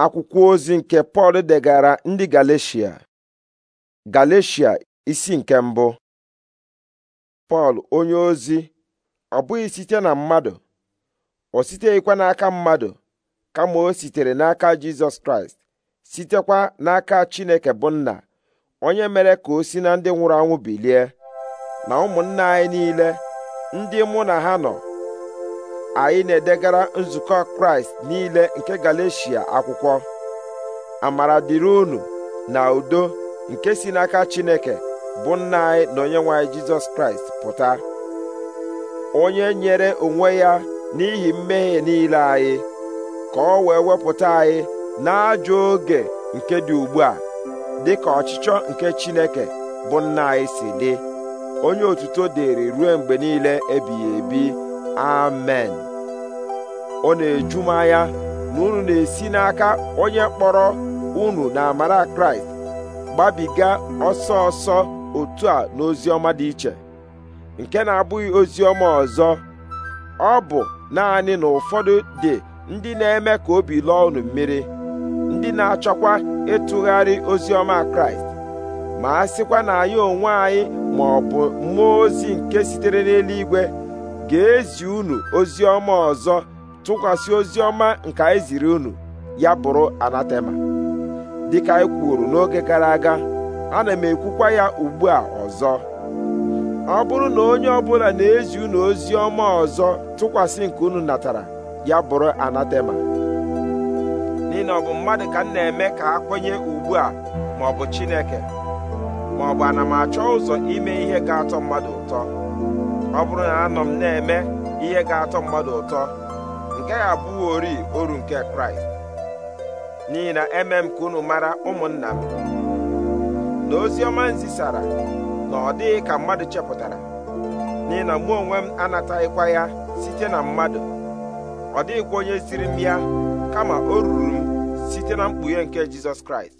akwụkwọ ozi nke Pọl degara ndị galatia galecia isi nke mbụ Pọl onye ozi ọ bụghị site na mmadụ o siteghịkwa n'aka mmadụ kama o sitere n'aka Jizọs Kraịst sitekwa n'aka Chineke bụ nna onye mere ka o si na ndị nwụrụ anwụ bilie na ụmụnna anyị niile ndị mụ na ha nọ anyị na-edegara nzukọ kraịst niile nke galeshia akwụkwọ amara dịrị unu na udo nke si n'aka chineke bụ nna anyị na onyenwe anyị jizọs kraịst pụta onye nyere onwe ya n'ihi mmehie niile anyị ka ọ wee wepụta anyị n'ajọ oge nke dị ugbu a dị ka ọchịchọ nke chineke bụ nna anyị si dị onye otuto dịrị ruo mgbe niile ebighị ebi amen ọ na-eju m anya na unu na-esi n'aka onye kpọrọ unu na amara kraịst gbabiga ọsọ ọsọ otu a n'ozi ọma dị iche nke na-abụghị ozi ọma ọzọ ọ bụ naanị na ụfọdụ dị ndị na-eme ka obi lụọ unu mmiri ndị na-achọkwa ịtụgharị ozi ọma kraịst ma a sịkwa na anyị onwe anyị ma ọ bụ mmụọ ozi nke sitere n'eluigwe ga-ezi unu ozi ọma ọzọ tụkwasị ozi ọma nke anyị ziri unu ya bụrụ anatema dịka anyị kwuru n'oge gara aga ana m ekwukwa ya ugbu a ọzọ ọ bụrụ na onye ọbụla na-ezi unu ozi ọma ọzọ tụkwasị nke unu natara ya bụrụ anatema n'ihi na ọ bụ mmadụ ka m na-eme ka a kwenye ugbu a ma ọ bụ Chineke ma ọ bụ ana m achọ ụzọ ime ihe ga-atọ mmadụ ụtọ ọ bụrụ na anọ m na-eme ihe ga-atọ mmadụ ụtọ nke ya abụghị ori oru nke kraịst n'ihi na eme m ka unu mara ụmụnna m na ozi ọma na ọ dịghị ka mmadụ chepụtara n'ihi na mụ onwe m anataghịkwa ya site na mmadụ ọ dịghịkwa onye siri m ya kama o ruru m site na mkpughe nke jizọs kraịst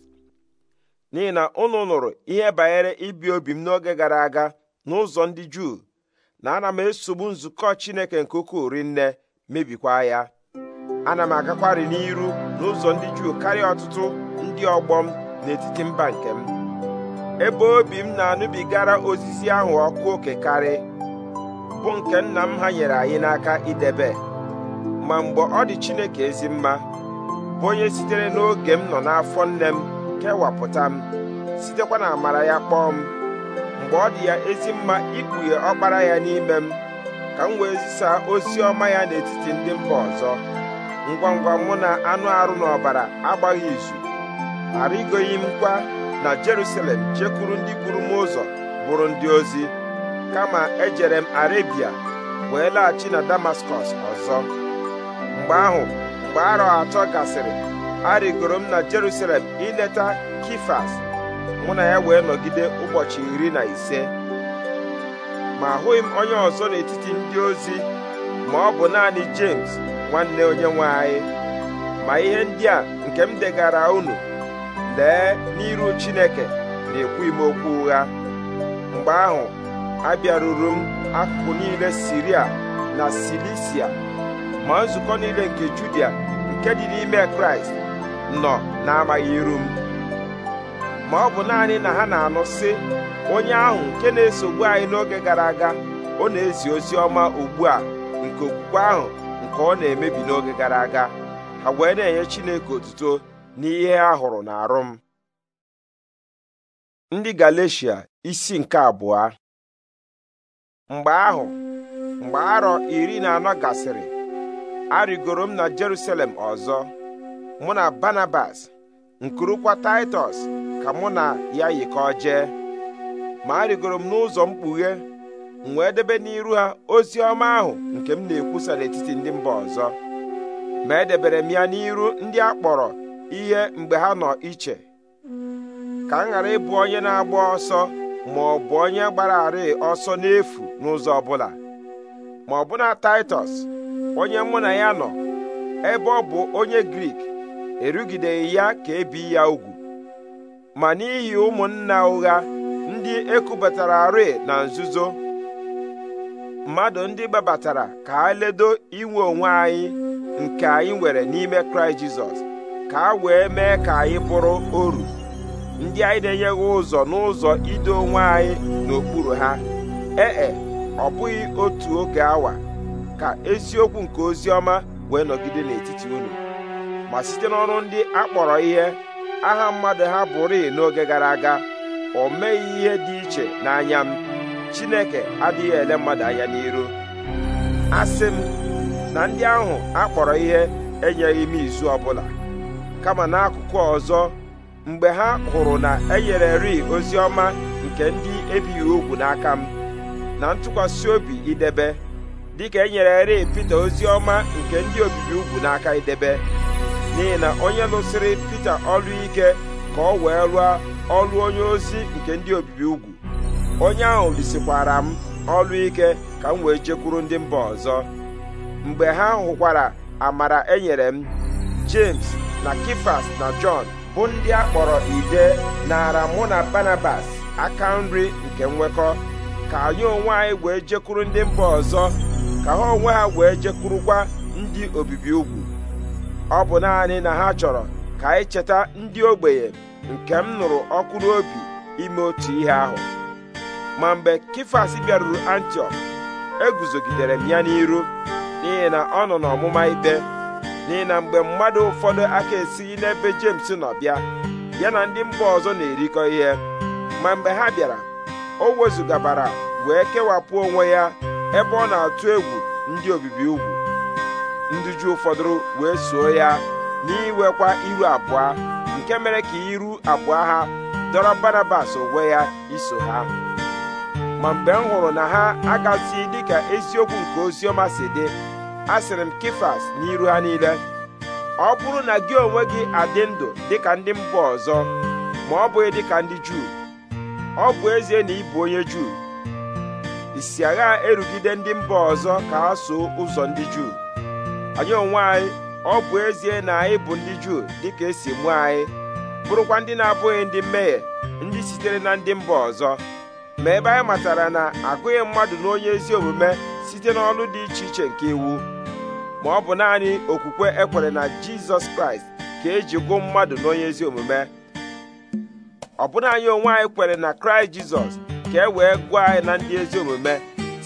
n'ihi na unu nụrụ ihe banyere ibi obi m n'oge gara aga n'ụzọ ndị juu na ana m esogbu nzukọ chineke nke ukwuu rinne mebikwa ya ana m agakwarị n'iru n'ụzọ ndị juu karịa ọtụtụ ndị ọgbọ m n'etiti mba nke m ebe obi m na-anụbigara ozizi ahụ ọkụ oke karị bụ nke nna m ha nyere anyị n'aka idebe ma mgbe ọ dị chineke ezi mma bụ onye sitere n'oge m nọ n'afọ nne m kewapụta m sitekwa na amara ya kpọọ m mgbe ọ dị ya ezi mma ikpughe ọkpara ya n'ime m ka m wee zisaa ozi ọma ya n'etiti ndị mba ọzọ ngwa ngwa mụ na anụ arụ na ọbara agbaghị izu arịgoghị m kwa na Jerusalem jekwuru ndị buru m ụzọ bụrụ ndị ozi kama ejere m Arebia wee laghachi na Damaskọs ọzọ mgbe ahụ mgbe arọ atọ gasịrị arịgoro m na Jerusalem ileta Kifas mụ na ya wee nọgide ụbọchị iri na ise ma ahụghị m onye ọzọ n'etiti ndị ozi ma ọ bụ naanị James nwanne onye nwe anyị ma ihe ndị a nke m degara unu lee n'iru Chineke na-ekwughị m okwu ụgha mgbe ahụ abịaruru m akụkụ niile Siria na Silisia ma nzukọ niile nke Judia nke dị n'ime Kraịst nọ amaghị iru m ma ọ bụ naanị na ha na-anụ sị onye ahụ nke na-esogbu anyị n'oge gara aga ọ na-ezi ozi ọma ugbu a nke okwukwe ahụ nke ọ na-emebi n'oge gara aga ha wee na-enye Chineke otuto n'ihe a hụrụ n'arụ m ndị Galeshia isi nke abụọ mgbe ahụ mgbe arọ iri na anọ gasịrị arịgoro m na Jeruselem ọzọ mụ na Barnabas nkurukwa Titus ka mụ na ya yikọọ jee ma arịgoro m n'ụzọ mkpughe m wee debe n'iru ha ozi ọma ahụ nke m na-ekwusa n'etiti ndị mba ọzọ ma edebere m ya n'iru ndị a kpọrọ ihe mgbe ha nọ iche ka m ghara ịbụ onye na-agba ọsọ ma ọ bụ onye gbararị ọsọ n'efu n'ụzọ ọbụla ma ọbụna Taịtọs onye mụ na ya nọ ebe ọ bụ onye Grik erugideghị ya ka ebi ya ugwu ma n'ihi ụmụnna ụgha ndị ekubatara arị na nzuzo mmadụ ndị gbabatara ka a ledo inwe onwe anyị nke anyị nwere n'ime kraịst jizọs ka a wee mee ka anyị pụrụ oru ndị anyị na-enyeghị ụzọ n'ụzọ ido onwe anyị n'okpuru ha ee e, ọ bụghị otu oge awa ka eziokwu nke ozi ọma wee nọgide n'etiti unu ma site n'ọrụ ndị a kpọrọ ihe aha mmadụ ha bụrị n'oge gara aga o meghị ihe dị iche n'anya m Chineke adịghị ele mmadụ anya n'iru asị m na ndị ahụ akpọrọ ihe enyeghị m izu ọbụla kama n'akụkụ ọzọ mgbe ha hụrụ na enyere ri ozi ọma nke ndị ebighị ugwu n'aka m na ntụkwasị obi idebe dịka enyereri Pita ozi ọma nke ndị obibi ugwu n'aka idebe n'ihi na onye lụsịrị Pita ọlụ ike ka ọ wee lụọ ọlụ onye ozi nke ndị obibi ugwu onye ahụ lisikwara m ọlụ ike ka m wee jekwuru ndị mba ọzọ mgbe ha hụkwara amara enyere m James na Kifas na Jọn bụ ndị a kpọrọ ide nara mụ na Barnabas aka nri nke nwekọ ka anyị onwe anyị wee jekwuru ndị mba ọzọ ka ha onwe ha wee jekwurukwa ndị obibi ugwu ọ bụ naanị na ha chọrọ ka anyị cheta ndị ogbenye nke m nụrụ ọkụ n'obi ime otu ihe ahụ ma mgbe kifas bịaruru antiọk eguzogidere m ya n'iru n'ihi na ọ nọ n'ọmụma ikpe n'ihi na mgbe mmadụ ụfọdụ aka esighị n'ebe jems nọ bịa ya na ndị mba ọzọ na-erikọ ihe ma mgbe ha bịara o wezugabara wee kewapụ onwe ya ebe ọ na-atụ egwu ndị obibi ugwu ndị Juu fọdụrụ wee soo ya n'iwekwa iru abụọ nke mere ka iru abụọ ha dọrọ Barnabas onwe ya iso ha ma mgbe m hụrụ na ha agazighị dịka eziokwu nke oziọma si dị asịrị m na n'iru ha niile ọ bụrụ na gị onwe gị adị ndụ dịka ndị mba ọzọ ma ọ bụghị dịka ndị Juu ọ bụ ezie na ịbụ onye Juu isi agha erugide ndị mba ọzọ ka ha soo ụzọ ndị Juu anyị onwe anyị ọ bụ ezie na anyị bụ ndị juu dịka esi mụ anyị bụrụkwa ndị na-abụghị ndị mmehie ndị sitere na ndị mba ọzọ ma ebe anyị matara na agụghị mmadụ na onye ezi omume site n'ọlụ dị iche iche nke iwu ma ọ bụ naanị okwukwe ekwere na jizọs kraịst ka eji gụ mmadụ na onye ezi omume ọbụna anyị onwe anyị kwere na kraịst jizọs ka e wee gụọ anyị na ndị ezi omume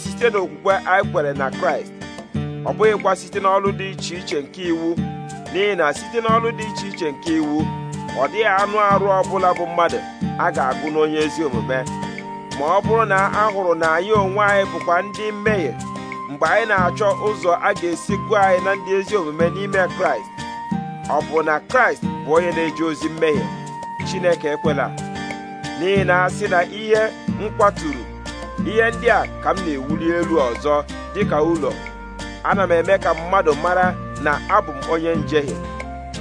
site n'okwukwe anyị kwere na kraịst ọ bụghịkwa site n'ọlụ dị iche iche nke iwu n'ihi na site n'ọlụ dị iche iche nke iwu ọ dịghị anụ arụ ọbụla bụ mmadụ a ga-agụ n'onye ezi omume ma ọ bụrụ na a hụrụ na anyị onwe anyị bụkwa ndị mmehie mgbe anyị na-achọ ụzọ a ga-esi gụọ anyị na ndị ezi omume n'ime kraịst ọ bụ na kraịst bụ onye na-eji ozi mmehie chineke ekwela n'ihi na a sị na ihe m kwaturu ihe ndị a ka m na-ewuli elu ọzọ dịka ụlọ ana m eme ka mmadụ mara na abụ m onye njehie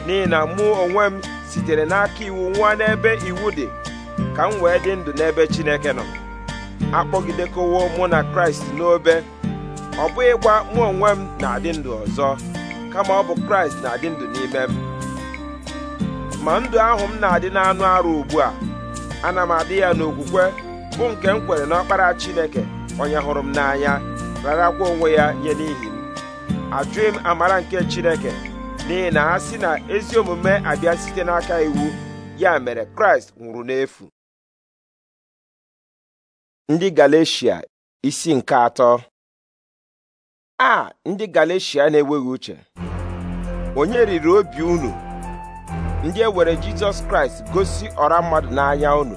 n'ihi na mụ onwe m sitere n'aka iwu nwa n'ebe iwu dị ka m wee dị ndụ n'ebe Chineke nọ akpọgidekowo mụ na Kraịst n'obe ọ bụghịkwa mụ onwe m na-adị ndụ ọzọ kama ọ bụ Kraịst na-adị ndụ n'ime m ma ndụ ahụ m na-adị n'anụ arụ ugbu a ana m adị ya n'okwukwe bụ nke m kwere n'ọkpara Chineke onye hụrụ m n'anya rarakwa onwe ya nye n'ihi m ajụghị m amara nke Chineke n'ihi na ha si na ezi omume abịa site n'aka iwu ya mere Kraịst nwụrụ n'efu ndị Galeshia isi nke atọ a ndị Galeshia na-enweghị uche onye riri obi unu ndị e were Jizọs Kraịst gosi ọra mmadụ n'anya unu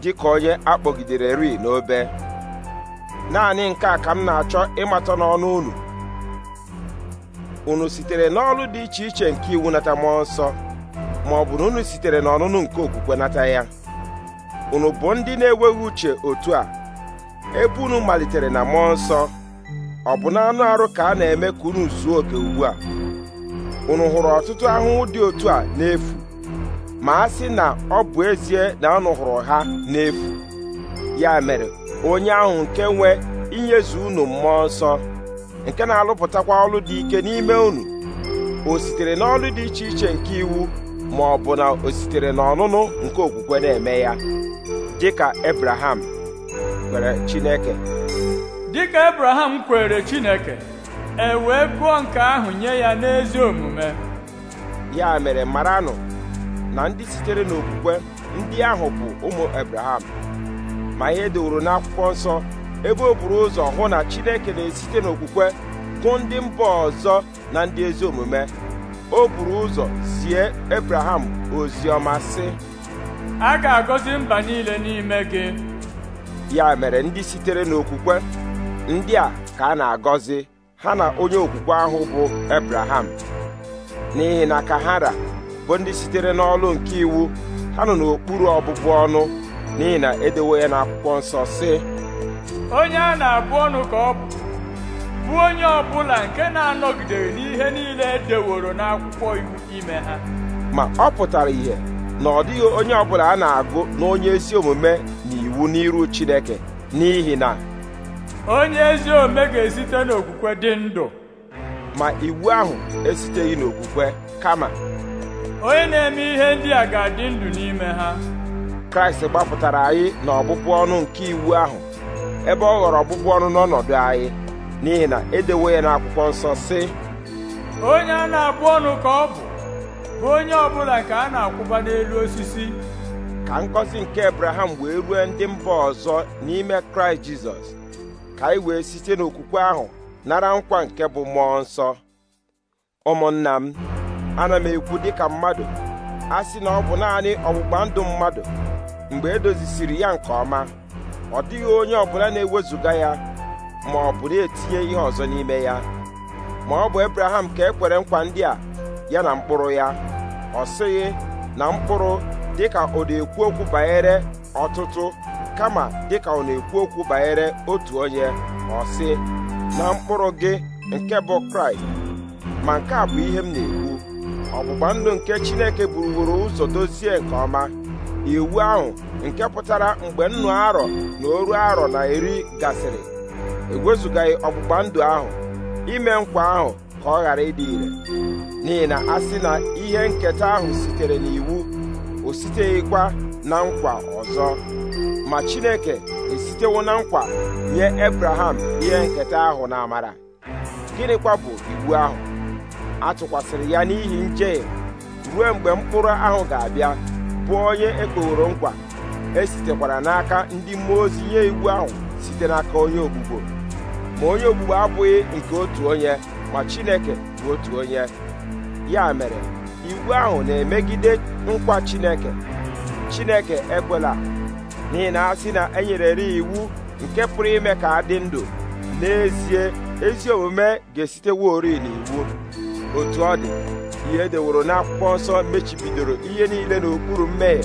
dị ka onye akpọgidere ri n'obe naanị nke a ka m na-achọ ịmata n'ọnụ unu unu sitere n'ọrụ dị iche iche nke iwu nata mmụọ nsọ ma ọ bụ na unu sitere n'ọnụnụ nke okwukwe nata ya unu bụ ndị na-enweghị uche otu a ebe unu malitere na mmụọ nsọ ọ bụ na anụ arụ ka a na-eme ka unu zuo oke ugbu a unu hụrụ ọtụtụ ahụhụ dị otu a n'efu ma a sị na ọ bụ ezie na anụ hụrụ ha n'efu ya mere onye ahụ nke nwee inyezu unu mmụọ nsọ nke na-alụpụtakwa ọlụ dị ike n'ime unu o sitere n'ọlụ dị iche iche nke iwu ma ọ bụ na o n'ọnụnụ nke okwukwe na-eme ya dịka Ebraham kwere Chineke dịka Ebraham kwere Chineke e wee gụọ nke ahụ nye ya n'ezi omume ya mere maranụ na ndị sitere n'okwukwe ndị ahụ bụ ụmụ Ebraham ma ihe dịworo n'akwụkwọ nsọ ebe o buru ụzọ hụ na Chineke na-esite n'okwukwe gụ ndị mba ọzọ na ndị ezi omume o buru ụzọ zie Ebraham ozi ọma sị a ga-agọzi mba niile n'ime gị ya mere ndị sitere n'okwukwe ndị a ka a na-agọzi ha na onye okwukwe ahụ bụ Ebraham n'ihi na kahara bụ ndị sitere n'ọlụ nke iwu ha nọ n'okpuru ọbụbụ ọnụ n'ihi na edewo ya n'akwụkwọ nsọ sị onye a na-abụ ọnụ ka ọ bụ bụ onye ọbụla nke na-anọgidere n'ihe niile edeworo n'akwụkwọ iwu ime ha ma ọ pụtara ihe na ọ dịghị onye ọbụla a na-agụ na onye ezi omume na iwu n'iru Chineke n'ihi na onye ezi omume ga-esite n'okwukwe dị ndụ ma iwu ahụ esiteghị n'okwukwe kama onye na-eme ihe ndị a ga-adị ndụ n'ime ha Kraịst gbapụtara anyị na ọbụbụ ọnụ nke iwu ahụ ebe ọ ghọrọ ọgbụgbọ ọnụ n'ọnọdụ anyị n'ihi na edewo ya n'akwụkwọ nsọ si. onye a na-abụ ọnụ ka ọ bụ bụ onye ọbụla ka a na-akwụba n'elu osisi ka ngọzi nke Abraham wee rue ndị mba ọzọ n'ime Kraịst Jizọs ka anyị wee site n'okwukwe ahụ nara nkwa nke bụ mmụọ nsọ ụmụnna m ana m ekwu dịka mmadụ a sị na ọ bụ naanị ọgbụgba ndụ mmadụ mgbe edozisiri ya nke ọma ọ dịghị onye ọbụla na-ewezuga ya ma ọ bụ na-etinye ihe ọzọ n'ime ya ma ọ bụ Ebraham ka e kwere nkwa ndị a ya na mkpụrụ ya ọ sịghị na mkpụrụ dịka ọ na-ekwu okwu banyere ọtụtụ kama dịka ọ na-ekwu okwu banyere otu onye ọ sị na mkpụrụ gị nke bụ Kraịst ma nke a bụ ihe m na-ekwu ọgbụgba ndụ nke Chineke buruworo ụzọ dozie nke ọma iwu ahụ nke pụtara mgbe nnụ arọ na oru arọ na eri gasịrị ewezụgaghị ọgbụgba ndụ ahụ ime nkwa ahụ ka ọ ghara ịdị ire n'ihi na a sị na ihe nketa ahụ sitere n'iwu o siteghịkwa na nkwa ọzọ ma Chineke esitewo na nkwa nye Ebraham ihe nketa ahụ na amara gịnịkwa bụ iwu ahụ a tụkwasịrị ya n'ihi njehie ruo mgbe mkpụrụ ahụ ga-abịa bụ onye ekpoworo nkwa esitekwara n'aka ndị mmụọ ozi nye iwu ahụ site n'aka onye ogbugbo ma onye ogbugbo abụghị nke otu onye ma Chineke bụ otu onye ya mere iwu ahụ na-emegide nkwa Chineke Chineke ekwela n'ihi na asị na e nyerere iwu nke pụrụ ime ka dị ndụ n'ezie ezi omume ga-esiteworị n'iwu otu ọ dị ihe edeworo n'akwụkwọ nsọ mechibidoro ihe niile n'okpuru mmehie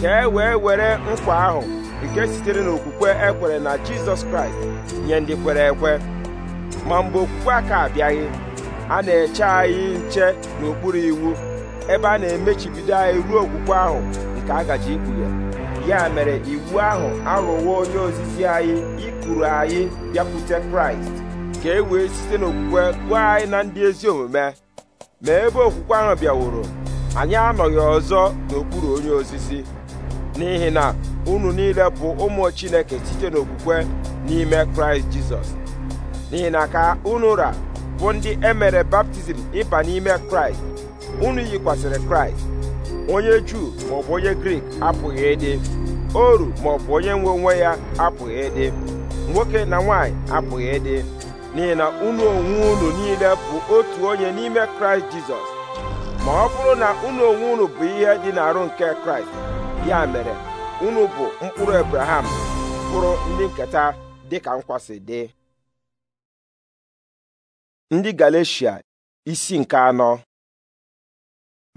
ka e wee were nkwa ahụ nke sitere n'okwukwe ekwere na jizọs kraịst nye ndị kwere ekwe ma mgbe okwukwe a abịaghị a na-eche anyị nche n'okpuru iwu ebe a na-emechibido anyị ruo okwukwe ahụ nke a gaji ikpughe ya mere iwu ahụ arụwo onye ozizi anyị ikuru anyị bịakwute kraịst ka e wee site n'okwukwe gwa anyị na ndị ezi omume ma ebe okwukwe ahụ bịaworo anyị anọghị ọzọ n'okpuru onye osisi n'ihi na unu niile bụ ụmụ Chineke site n'okwukwe n'ime Kraịst Jizọs n'ihi na ka unu ra bụ ndị emere baptizim ịba n'ime Kraịst unu yikwasịrị Kraịst onye Juu maọbụ onye Grik apụghị ịdị oru maọbụ onye nwe onwe ya apụghị ịdị nwoke na nwaanyị apụghị ịdị n'ihi na unu onwe unu niile bụ otu onye n'ime kraịst jizọs ma ọ bụrụ na unu onwe unu bụ ihe dị n'arụ nke kraịst ya mere unu bụ mkpụrụ abraham bụrụ ndị nketa dịka nkwasị dị ndị galecia isi nke anọ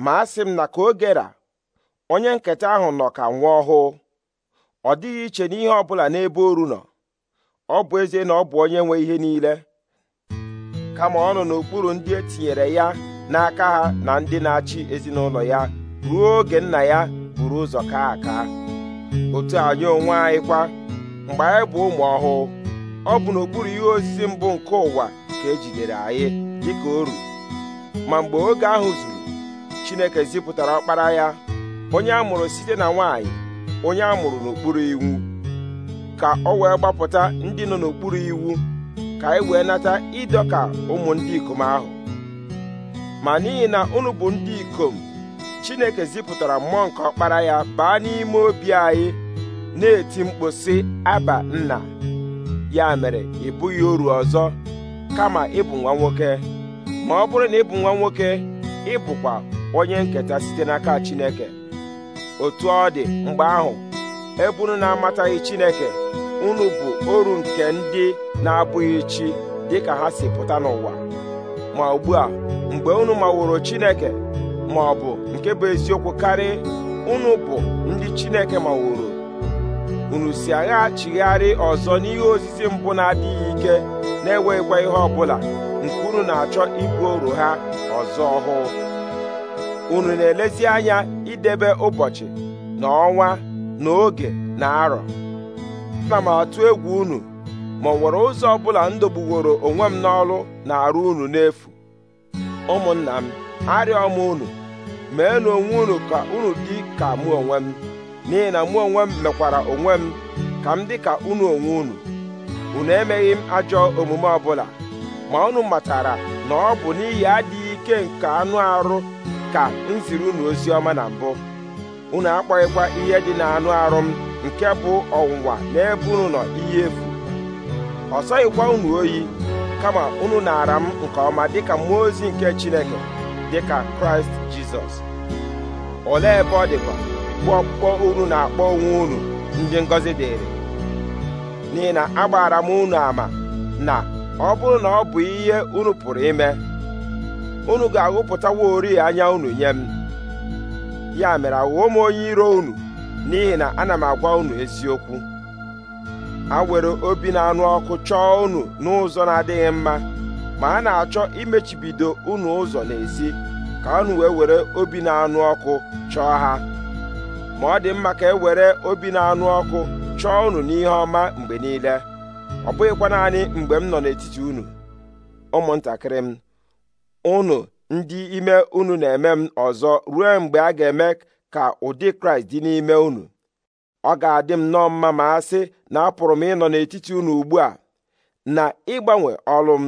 ma a m na ka ogera onye nketa ahụ nọ ka nwa ọhụụ ọ dịghị iche n'ihe ọ bụla n'ebe oru nọ ọ bụ ezie na ọ bụ onye nwe ihe niile kama ọ nọ n'okpuru ndị e tinyere ya n'aka ha na ndị na-achị ezinụlọ ya ruo oge nna ya buru ụzọ kaa aka otu anyị onwe anyị kwa mgbe anyị bụ ụmụ ọhụụ ọ bụ n'okpuru ihe osisi mbụ nke ụwa ka ejidere anyị dịka oru ma mgbe oge ahụ zuru Chineke zipụtara ọkpara ya onye a mụrụ site na nwanyị onye a mụrụ n'okpuru iwu ka ọ wee gbapụta ndị nọ n'okpuru iwu ka anyị wee nata ịdọka ụmụ ndị ikom ahụ ma n'ihi na unu bụ ndị ikom Chineke zipụtara mmụọ nke ọkpara ya baa n'ime obi anyị na-eti mkpu aba nna ya mere ị bụghị oru ọzọ kama ịbụ nwa nwoke ma ọ bụrụ na ịbụ nwa nwoke ịbụkwa onye nketa site n'aka Chineke otu ọ dị mgbe ahụ ebe unu na-amataghị Chineke unu bụ oru nke ndị na-abụghị chi dịka ha si pụta n'ụwa ma ugbu a mgbe unu maworo Chineke ma ọ bụ nke bụ eziokwu karị unu bụ ndị Chineke maworo unu si agha chigharị ọzọ n'ihe ozizi mbụ na-adịghị ike na-enweghịkwa ihe ọbụla nke unu na-achọ ibu oru ha ọzọ ọhụụ unu na-elezi anya idebe ụbọchị na ọnwa na na arọ ana m atụ egwu unu ma ọ nwere ụzọ ọbụla ndọgbuworo onwe m n'ọrụ na-arụ unu n'efu ụmụnna m arịọ m unu na onwe unu ka unu dị ka mụ onwe m n'ihi na mụ onwe m mekwara onwe m ka m dị ka unu onwe unu unu emeghị m ajọ omume ọbụla ma unu matara na ọ bụ n'ihi adịghị ike nke anụ arụ ka m ziri unu ozi ọma na mbụ unu akpọghịkwa ihe dị na anụ arụ m nke bụ ọnwụnwa n'ebe unu nọ ihe efu ọ sọghịkwa unu oyi kama unu na-ara m nke ọma dịka mmụọ ozi nke Chineke dịka Kraịst Jizọs olee ebe ọ dịkwa bụ ọkpụkpọ unu na-akpọ onwe unu ndị ngọzi dịrị n'ihi na agbaara m unu ama na ọ bụrụ na ọ bụ ihe unu pụrụ ime unu ga-aghụpụtawa ori anya unu nye m ya mere aghụghọ m onye iro unu n'ihi na ana m agwa unu eziokwu ha were obi na-anụ ọkụ chọọ unu n'ụzọ na-adịghị mma ma a na-achọ imechibido unu ụzọ n'ezi ka unu wee were obi na-anụ ọkụ chọọ ha ma ọ dị mma ka e were obi na-anụ ọkụ chọọ unu n'ihe ọma mgbe niile ọ bụghịkwa naanị mgbe m nọ n'etiti unu ụmụntakịrị m unu ndị ime unu na-eme m ọzọ ruo mgbe a ga-eme ka ụdị kraịst dị n'ime unu ọ ga-adị m nọọ mma ma a sị na apụrụ m ịnọ n'etiti unu ugbu a na ịgbanwe ọlụ m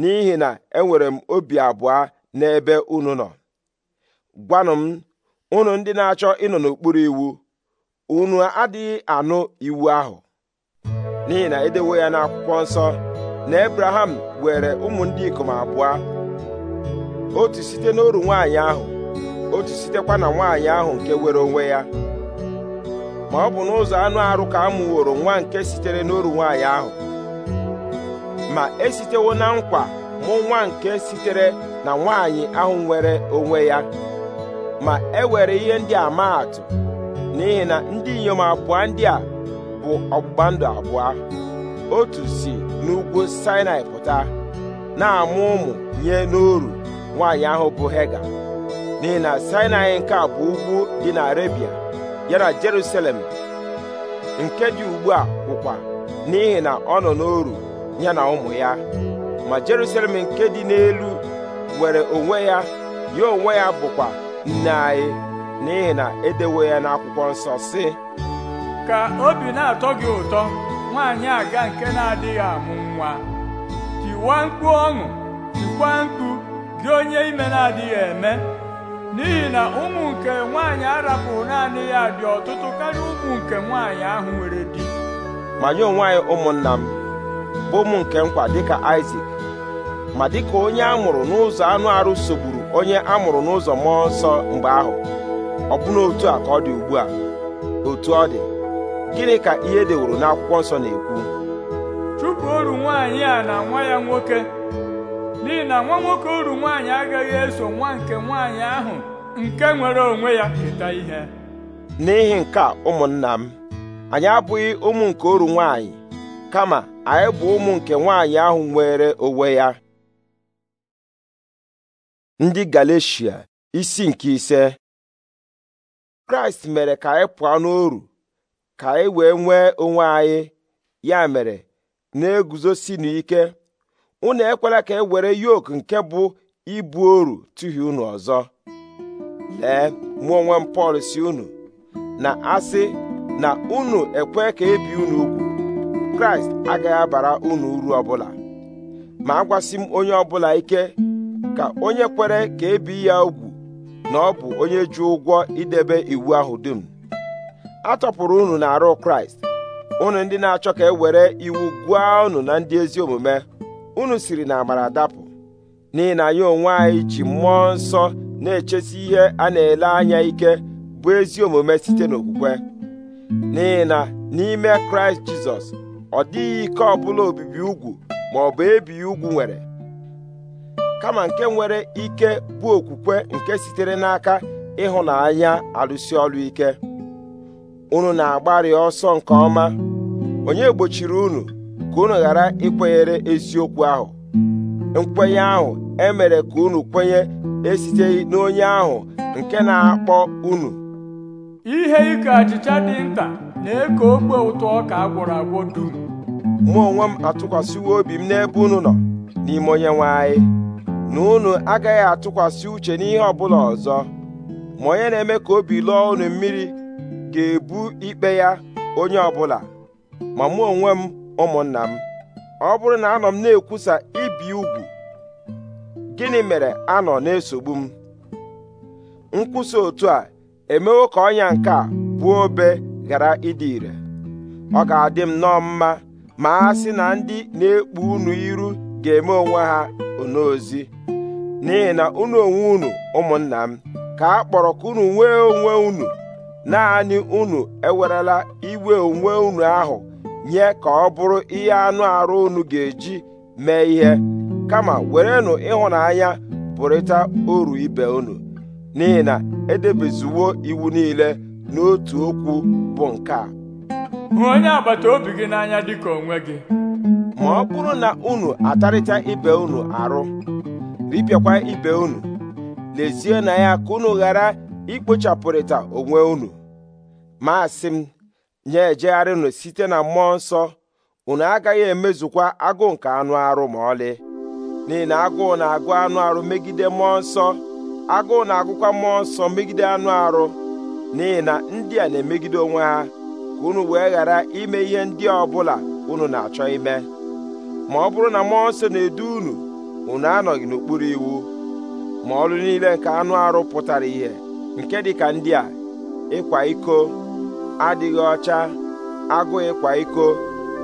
n'ihi na enwere m obi abụọ n'ebe unu nọ gwanụ m unu ndị na-achọ ịnọ n'okpuru iwu unu adịghị anụ iwu ahụ n'ihi na edewo ya n'akwụkwọ nsọ na Abraham were ụmụ ndị ikom abụọ otu site n'oru nwaanyị ahụ otu sitekwa na nwaanyị ahụ nke were onwe ya ma ọ bụ n'ụzọ anụ arụ ka a mụworo nwa nke sitere n'oru nwaanyị ahụ ma esitewo na nkwa mụ nwa nke sitere na nwaanyị ahụ nwere onwe ya ma e were ihe ndị a maa atụ n'ihi na ndị inyom abụọ ndị a bụ ọgbụgba ndụ abụọ otu si n'ugwu Sinai pụta na-amụ ụmụ nye n'oru nwaanyị ahụ bụ Hega n'ihi na Sinai nke a bụ ugwu dị na Arebia ya na Jerusalem nke dị ugbu a bụkwa n'ihi na ọ nọ n'oru ya na ụmụ ya ma Jerusalem nke dị n'elu nwere onwe ya ya onwe ya bụkwa nne anyị n'ihi na edewo ya n'akwụkwọ nsọ si. ka obi na-atọ gị ụtọ nwaanyị aga nke na-adịghị amụ nwa tiwa mkpu ọṅụ tikwa mkpu gị onye ime na-adịghị eme n'ihi na ụmụ nke nwaanyị arapụrụ naanị ya dị ọtụtụ karịa ụmụ nke nwaanyị ahụ nwere di ma nye onwe ụmụnna m bụ ụmụ nke nkwa dịka Isak ma dịka onye a mụrụ n'ụzọ anụ arụ sogburu onye a mụrụ n'ụzọ mmụọ nsọ mgbe ahụ ọbụna otu a ka ọ dị ugbu a otu ọ dị gịnị ka ihe deworo n'akwụkwọ nsọ na-ekwu chụpụ oru nwaanyị a na nwa ya nwoke n'ihi na nwa nwoke uru nwaanyị agaghị eso nwa nke nwaanyị ahụ nke nwere onwe ya keta ihe n'ihi nke a ụmụnna m anyị abụghị ụmụ nke uru nwaanyị kama anyị bụ ụmụ nke nwaanyị ahụ nwere onwe ya ndị Galeshia isi nke ise kraịst mere ka anyị pụọ n'oru ka anyị wee nwee onwe anyị ya mere na-eguzosi n'ike unu ekwela ka e were yoke nke bụ ibu oru tụhie unu ọzọ lee mụ onwe m Pọl si unu na asị na unu ekwe ka ebi unu ugwu kraịst agaghị abara unu uru ọbụla ma agwasị m onye ọbụla ike ka onye kwere ka ebi ya ugwu na ọ bụ onye ji ụgwọ idebe iwu ahụ dum a tọpụrụ unu na arụ kraịst unu ndị na-achọ ka e were iwu gụọ unu na ndị ezi omume unu siri na amara dapụ n'ihi na ya onwe anyị ji mmụọ nsọ na-echesi ihe a na-ele anya ike bụ ezi omume site n'okwukwe n'ihi na n'ime kraịst jizọs ọ dịghị ike ọbụla obibi ugwu ma ọ bụ ebighị ugwu nwere kama nke nwere ike bụ okwukwe nke sitere n'aka ịhụnanya alụsi ọlụ ike unu na-agbarị ọsọ nke ọma onye gbochiri unu ka unu ghara ikwenyere eziokwu ahụ nkwenye ahụ emere ka unu kwenye esiteghị n'onye ahụ nke na-akpọ unu ihe ike achịcha dị nta na-eko okpo ụtọ ọka agwọrọ agwọ dum mụ onwe m atụkwasịwo obi m n'ebe unu nọ n'ime onye nwe anyị na unu agaghị atụkwasị uche n'ihe ọbụla ọzọ ma onye na-eme ka obi lụọ unu mmiri ga-ebu ikpe ya onye ọbụla ma mụ onwe m ụmụnna m ọ bụrụ na anọ m na-ekwusa ibi ugwu gịnị mere anọ na-esogbu m nkwusa otu a emewo ka ọnya nke a bụ obe ghara ịdị ire ọ ga-adị m nọ mma ma a sị na ndị na-ekpu unu iru ga-eme onwe ha onozi n'ihi na unu onwe unu ụmụnna m ka a kpọrọ ka unu nwee onwe unu naanị unu ewerela iwe onwe unu ahụ nye ka ọ bụrụ ihe anụ arụ unu ga-eji mee ihe kama werenụ ịhụnanya pụrịta oru ibe unu n'ihi na edebezuwo iwu niile n'otu okwu bụ nke a hụ onye agbata obi gị n'anya dịka onwe gị ma ọ bụrụ na unu atarịta ibe unu arụ ripịakwa ibe unu lezie na ya ka unu ghara ikpochapụrịta onwe unu ma m ya ejegharịnụ site na mmụọ nsọ unu agaghị emezukwa agụụ nke anụ arụ ma ọlị n'ihi na agụụ na-agụ anụ arụ megide mmụọ nsọ agụụ na-agụkwa mmụọ nsọ megide anụ arụ n'ihi na ndị a na-emegide onwe ha ka unu wee ghara ime ihe ndị ọ bụla unu na-achọ ime ma ọ bụrụ na mmụọ nsọ na-edu unu unu anọghị n'okpuru iwu ma ọrụ niile nke anụ arụ pụtara ihe nke dị ka ndị a ịkwa iko adịghị ọcha agụ ịkwa iko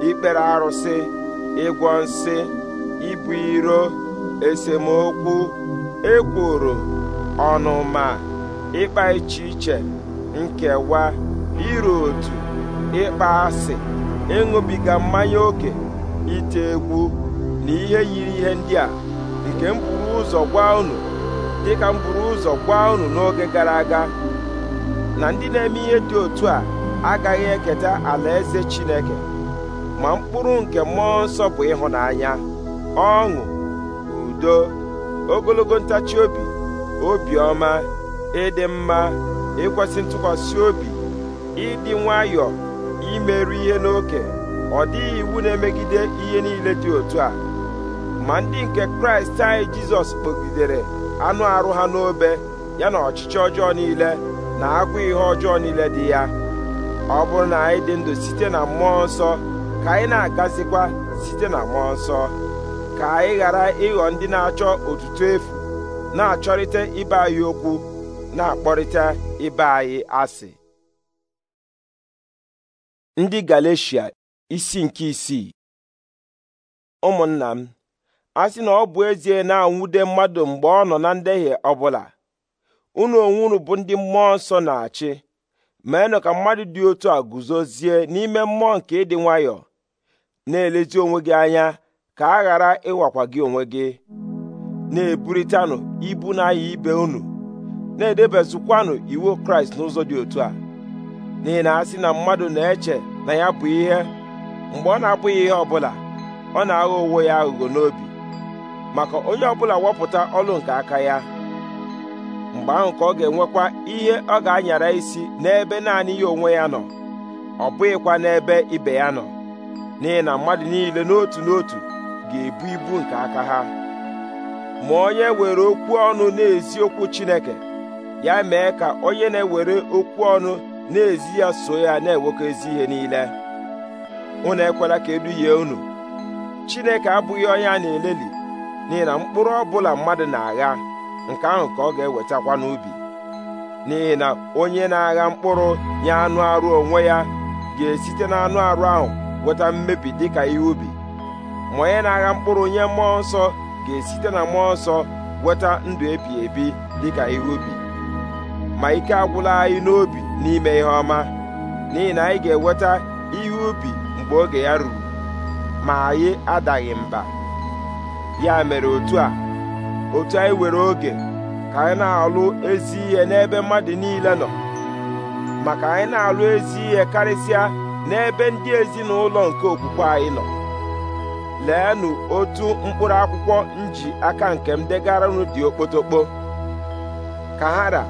ikpere arụsị ịgwọ nsị ibu iro esemokwu ekworo ọnụma ịkpa iche iche nkewa iru otu ịkpa asị ịṅụbiga mmanya oke ite egwu na ihe yiri ihe ndị a nke m buru ụzọ gwa unu dịka m ụzọ gwa unu n'oge gara aga na ndị na-eme ihe dị otu a agaghị eketa alaeze Chineke ma mkpụrụ nke mmụọ nsọ bụ ịhụnanya ọṅụ udo ogologo ntachi obi obiọma ịdị mma ịkwesị ntụkwasị obi ịdị nwayọọ imerụ ihe n'oke ọ dịghị iwu na-emegide ihe niile dị otu a ma ndị nke kraịst anyị jizọs kpọgidere anụ arụ ha n'obe ya na ọchịchị ọjọọ niile na agwụ ihe ọjọọ niile dị ya ọ bụrụ na anyị dị ndụ site na mmụọ nsọ ka anyị na-agazikwa site na mmụọ nsọ ka anyị ghara ịghọ ndị na-achọ otutu efu na-achọrịta ibe anyị okwu na-akpọrịta ibe anyị asị ndị galecia isi nke isii ụmụnna m a sị na ọ bụ ezie na-anwude mmadụ mgbe ọ nọ na ndehie ọbụla unu onwe unu bụ ndị mmụọ nsọ na-achị meenụ ka mmadụ dị otu a guzozie n'ime mmụọ nke ịdị nwayọọ na-elezi onwe gị anya ka a ghara ịwakwa gị onwe gị na-eburitanụ ibu na n'ahịa ibe unu na-edebezukwanụ iwu kraịst n'ụzọ dị otu a n'ihi na asị na mmadụ na-eche na ya bụ ihe mgbe ọ na-abụghị ihe ọbụla ọ na-aghọ onwe ya aghụghọ n'obi maka onye ọbụla wepụta ọlụ nke aka ya mgbe ahụ ka ọ ga-enwekwa ihe ọ ga-anyara isi n'ebe naanị ya onwe ya nọ ọ bụghịkwa n'ebe ibe ya nọ n'ihi na mmadụ niile n'otu n'otu ga-ebu ibu nke aka ha ma onye were okwu ọnụ na-ezi okwu Chineke ya mee ka onye na-ewere okwu ọnụ na-ezi ya so ya na-ewekọ ezi ihe niile unu ekwela ka eduhie unu Chineke abụghị onye a na-eleli n'ihi na mkpụrụ ọ bụla mmadụ na-agha nke ahụ ka ọ ga-ewetakwa n'ubi n'ihi na onye na-agha mkpụrụ nye anụ arụ onwe ya ga-esite na anụ arụ ahụ weta mmebi ka ihe ubi ma onye na-agha mkpụrụ nye mmụọ nsọ ga-esite na mmụọ nsọ weta ndụ ebi ebi ka ihe ubi ma ike agwụla anyị n'obi n'ime ihe ọma n'ihi na anyị ga-eweta ihe ubi mgbe oge ya ruru ma anyị adaghị mba ya mere otu a otu anyị were oge ka anyị na-alụ ezi ihe n'ebe mmadụ niile nọ maka anyị na-alụ ezi ihe karịsịa n'ebe ndị ezinụlọ nke okwukwe anyị nọ leenụ otu mkpụrụ akwụkwọ nji aka nke m degara unu dị okpotokpo ka ha ra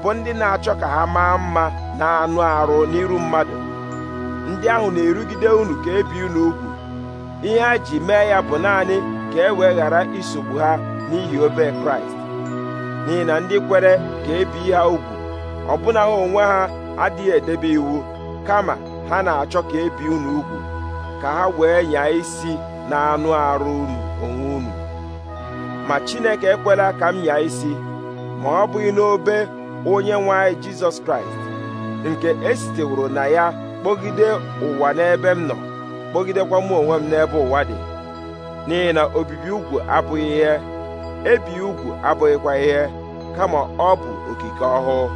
bụ ndị na-achọ ka ha maa mma na anụ arụ n'iru mmadụ ndị ahụ na-erugide unu ka ebi unu ugwu ihe ha ji mee ya bụ naanị ka e wee ghara isogbu ha n'ihi obe kraịst n'ihi na ndị kwere ka ebi ha ugwu ọbụna ha onwe ha adịghị edebe iwu kama ha na-achọ ka ebi unu ugwu ka ha wee nyaa isi na anụ arụ unu onwe unu ma chineke ekwela ka m nyaa isi ma ọ bụghị n'obe onye nwe anyị jizọs kraịst nke esiteworo na ya kpọgide ụwa n'ebe m nọ kpọgidekwa m onwe m n'ebe ụwa dị n'ihi na obibi ugwu abụghị ihe ebi ugwu abụghịkwa ihe kama ọ bụ okike ọhụụ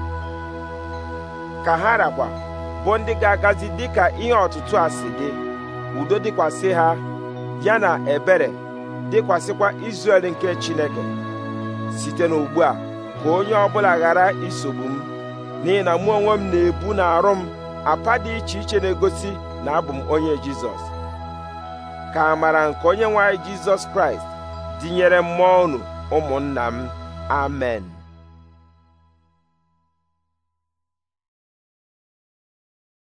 ka ha rakwa bụ ndị ga-agazi dịka ihe ọtụtụ a si gị udo dịkwasị ha ya na ebere dịkwasịkwa Izrel nke Chineke site n'ugbu a ka onye ọbụla ghara isogbu m n'ihi na mụ onwe m na-ebu na arụ m apa dị iche iche na-egosi na abụ m onye Jizọs ka amara nke onye nwanyị Jizọs Kraịst dịnyere mmụọ unu ụmụnna m amen